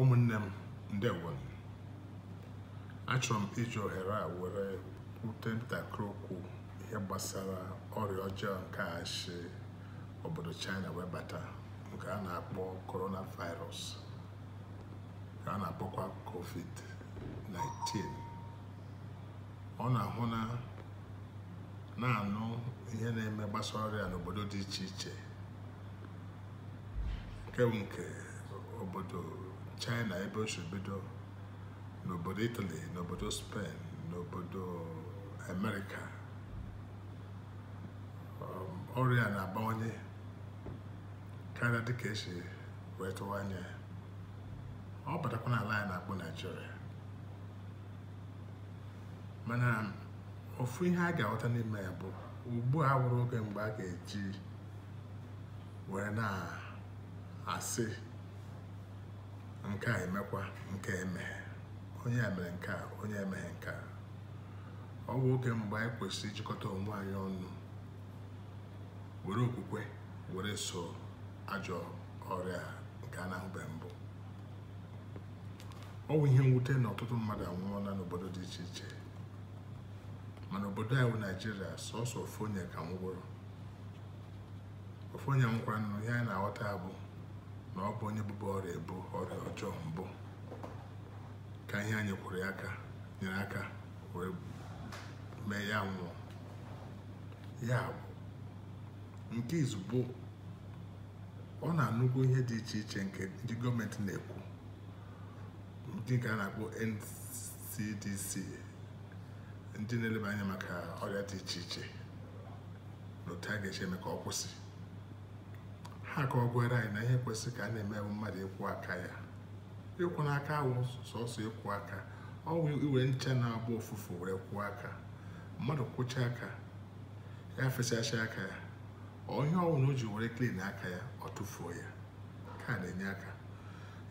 ụmụnne m ndewo achọrọ m iji ohere a were kwute ntakịrị okwu ihe gbasara ọrịa ọjọọ nke a obodo china wee bata nke a na-akpọ coronavirus ka a na-akpọkwa covid-19 ọ na-ahụ na na-anụ ihe na-eme gbasara ọrịa n'obodo dị iche iche nke nke obodo china ebe o si n'obodo italy n'obodo spen n'obodo amerịka um, ọrịa na-abawanye karịa dịka esi wee tụwa anya ọ batakwa n'ala anyị na-akpọ naijiria mana ofu ihe a ga-aghọta n'ime ya bụ ugbu a wụrụ oge mgbe a ga-eji were na-asị nke a emekwa nke emeghe onye emere nke a onye emeghe nke a ọ bụ oge mgbe anyị kwesịrị ijikọta onwe anyị ọnụ were okwukwe were so ajọ ọrịa nke a na-ahụbe mbụ ọ bụ ihe mwute na ọtụtụ mmadụ anwụọla n'obodo dị iche iche mana obodo anyị bụ naijiria sọsọ ofu onye ka nwụrụ ofu onye ihe anyị na-aghọta bụ na ọ bụ onye bụbu ọrịa ebu ọrịa ọjọọ mbụ ka ihe anyị kwụrụ ya aka nyere aka wee mee ya nwụọ ya bụ nke izugbo ọ na-anụgo ihe dị iche iche nke ndị gọọmenti na-ekwu ndị nke a na-akpọ NCDC ndị na-eleba anya maka ọrịa dị iche iche na otu a ga-eche eme ka ọ kwụsị ha ka ọ gwara anyị na ihe kwesịrị ka a na-eme mmadụ ịkwụ aka ya ịkwụ n'aka awụ sọsọ ịkwụ aka ọ wụ iwe ncha na-agba ụfụfụ were kwụọ aka mmadụ kwụcha aka ya fesasịa aka ya onye ọwụ na o ji were klin aka ya ọ tụfuo ya ka na-enye aka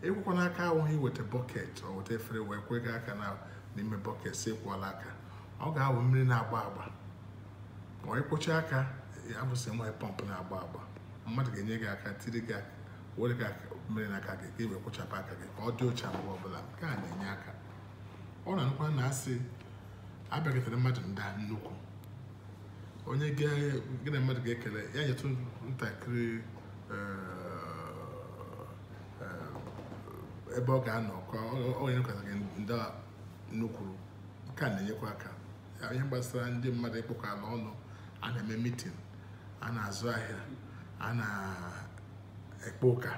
ịkwụkwọ n'aka awụghị iweta bọket ọ weta efere wee kwega aka n'ime bọket si ịkwụọla aka ọ ga-awụ mmiri na-agba agba ma ọ ịkwụcha aka ya bụsị nwa pọmpụ na-agba agba mmadụ ga-enye gị aka tiri gị aka were gị aka na aka gị ka iwe e kwụchapụ aka gị ka ọ dị ocha mgbe ọbụla nke a na-enye aka ọ na na asị abịagịtara mmadụ nda nnukwu onye gị na mmadụ ga-ekele ya nyetụ ntakịrị eh, eh, ebe ọ ga-anọ ka ọ ga gị nda nnukwu nke a na-enyekwa aka onye gbasara ndị mmadụ ịkpọkọ ala ọnụ a na-eme mitin a na-azụ ahịa a na-ekpe ụka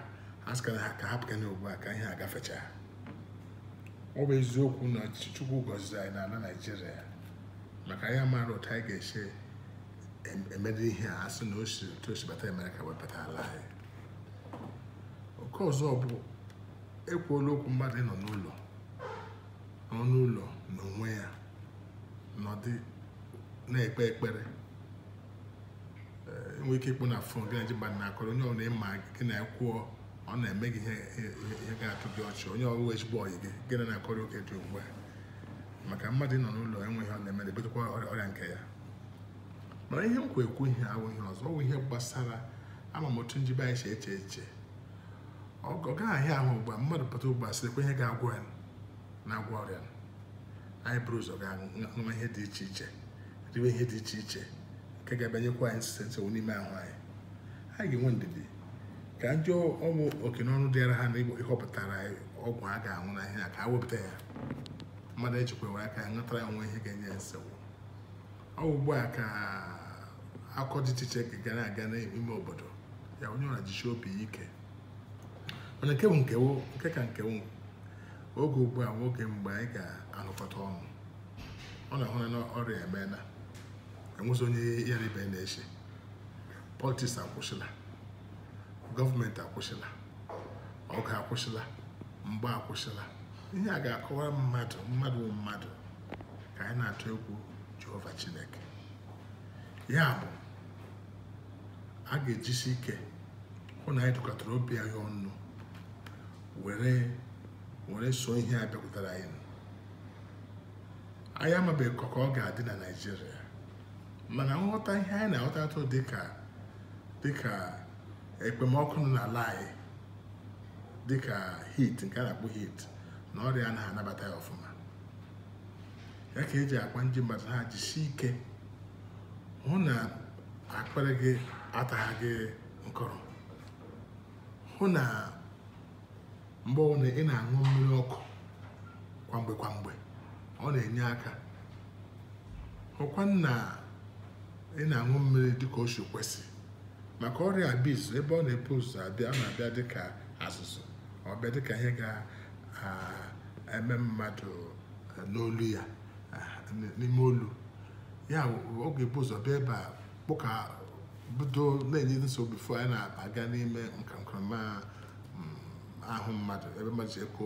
a sịkara ha ka hapụkana ugbu a ka ihe agafecha gafechaa ọ bụ eziokwu na chukwu gọziri anyị n'ala naijiria maka anyị maara otu anyị ga-esi emede ihe a asị na otu osibata emere ka wepụta ala anyị oke ọzọ bụ ekwuola okwu mmadụ nọ n'ụlọ n'ọnụ ụlọ onwe ya ọdị na-ekpe ekpere nwee ike ịkpụ na fon gị na ji mba na-akọrọ onye ọbụla ịma gị na kwuo ọ na-eme gị ihe ga-atụ gị ọchị onye ọbụla ezigbo ọyị gị gị na-akọrọ oge dị ugbu a maka mmadụ nọ n'ụlọ enweghị ọ na-eme na ọrịa nke ya mana ihe nkwa ekwu ihe awụghị ọzọ ọ ihe gbasara ama m otu njibe anyị si eche eche ọ ahịa ahụ ugbu a mmadụ pụta ugbu a sịrịkwa ihe ga-agwọ ya na-agwọ ọrịa anyị bụrụ ụzọ ga ihe dị iche iche riwe ihe dị iche iche ka ga-abịanyekwa anyị nsensị n'ime ahụ anyị anyị ga-enwe ndidi ka njọ ọnwụ oke n'ọnụ dịara ha na ịhọpụtara ọgwụ a ga-anwụ na ihe a ka ha wepụta ya mmadụ echekwawe aka ya ṅụtara ya nwe ihe ga-enye nsewu ọ ugbu a ka akọ dị iche iche ga aga n'ime obodo ya onye ọra jichi obi ike mana nke bụ nkewo nke ka nkewo oge ugbu a nwoge mgbe anyị ga-anụkọta ọnụ ọ na-ahụ na ọrịa emeela enwezi onye ya na na-eche politiks akwụsịla gọọmenti akwụsịla ọgụ akwụsịla mgba akwụsịla ihe a ga-akọwa mmadụ mmadụ mmadụ ka anyị na-atụ egwu jehova chineke ya bụ a ga-ejisi ike hụ na anyị dụkọtara obi anyị ọnụ were were so ihe a bịakwutere anyị anyị amabeghị ka ọ ga-adị na naijiria mana nghọta ihe anyị na-aghọta atụ dịka dịka ekpemọkụ nọ n'ala anyị dịka hit nke a na akpụ hit na ọrịa na anabata ya ọfụma ya ka eji akwa ndị mmadụ ha jisie ike hụ na akpịrị gị atagha gị nkọrọ hụ na mgbe ọbụla ị na-aṅụ mmiri ọkụ kwamgbe kwamgbe ọ na-enye aka hụkwa na ị na-aṅụ mmiri dịka o kwesị maka ọrịa abiz ebe ọ na-ebu ụzọ abịa ọ na-abịa dịka azụzụ ọ dịka ihe ga-eme mmadụ e, n'olu ya n'ime olu ya ọ ga-ebu ụzọ bịa ebe a kpụka bido na-enye nsogbu bifo na-aga n'ime nkankanma mm, ahụ mmadụ ebe mmadụ ji ekwe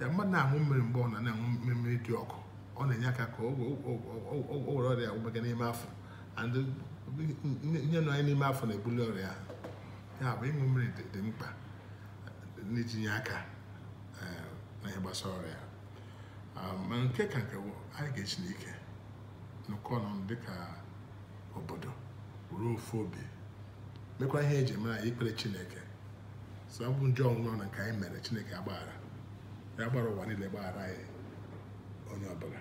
ya mmadụ na-aṅụ mmiri mgbe ọ na na-aṅụ mmiri dị ọkụ ọ na-enye aka ka o were ọrịa ụgbega n'ime afọ nye nọ anyị n'ime afọ na-ebuli ọrịa ya bụ ịṅụ mmiri dị mkpa n'itinye aka na ihe gbasara ọrịa ma nke ka nke anyị ga-eji n'ike n'ụkọ nọ dịka obodo ruo ofu obi mekwa ihe eji mara ikpere chineke so ọ bụ njọ ọnwụnọ na nke anyị mere chineke agbaghara ya gbara ụwa niile gbaghara anyị onye ọbụla